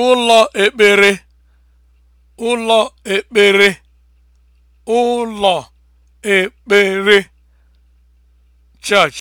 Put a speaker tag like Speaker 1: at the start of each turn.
Speaker 1: ụlọ ekpere ụlọ ekpere ụlọ ekpere church